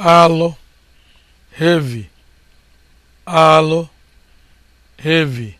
alụ hevi alụ hevi.